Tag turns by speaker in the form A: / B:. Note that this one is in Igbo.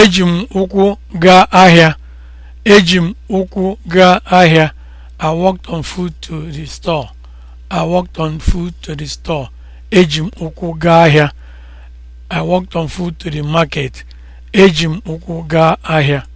A: eji m ụkwụ gaa ahịa eji m ụkwụ gaa ahịa i walked on foot to the store i walked on foot to the store eji m ụkwụ gaa ahịa i walked on foot to the market eji m ụkwụ gaa ahịa